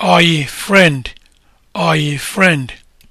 Are you friend? Are you friend?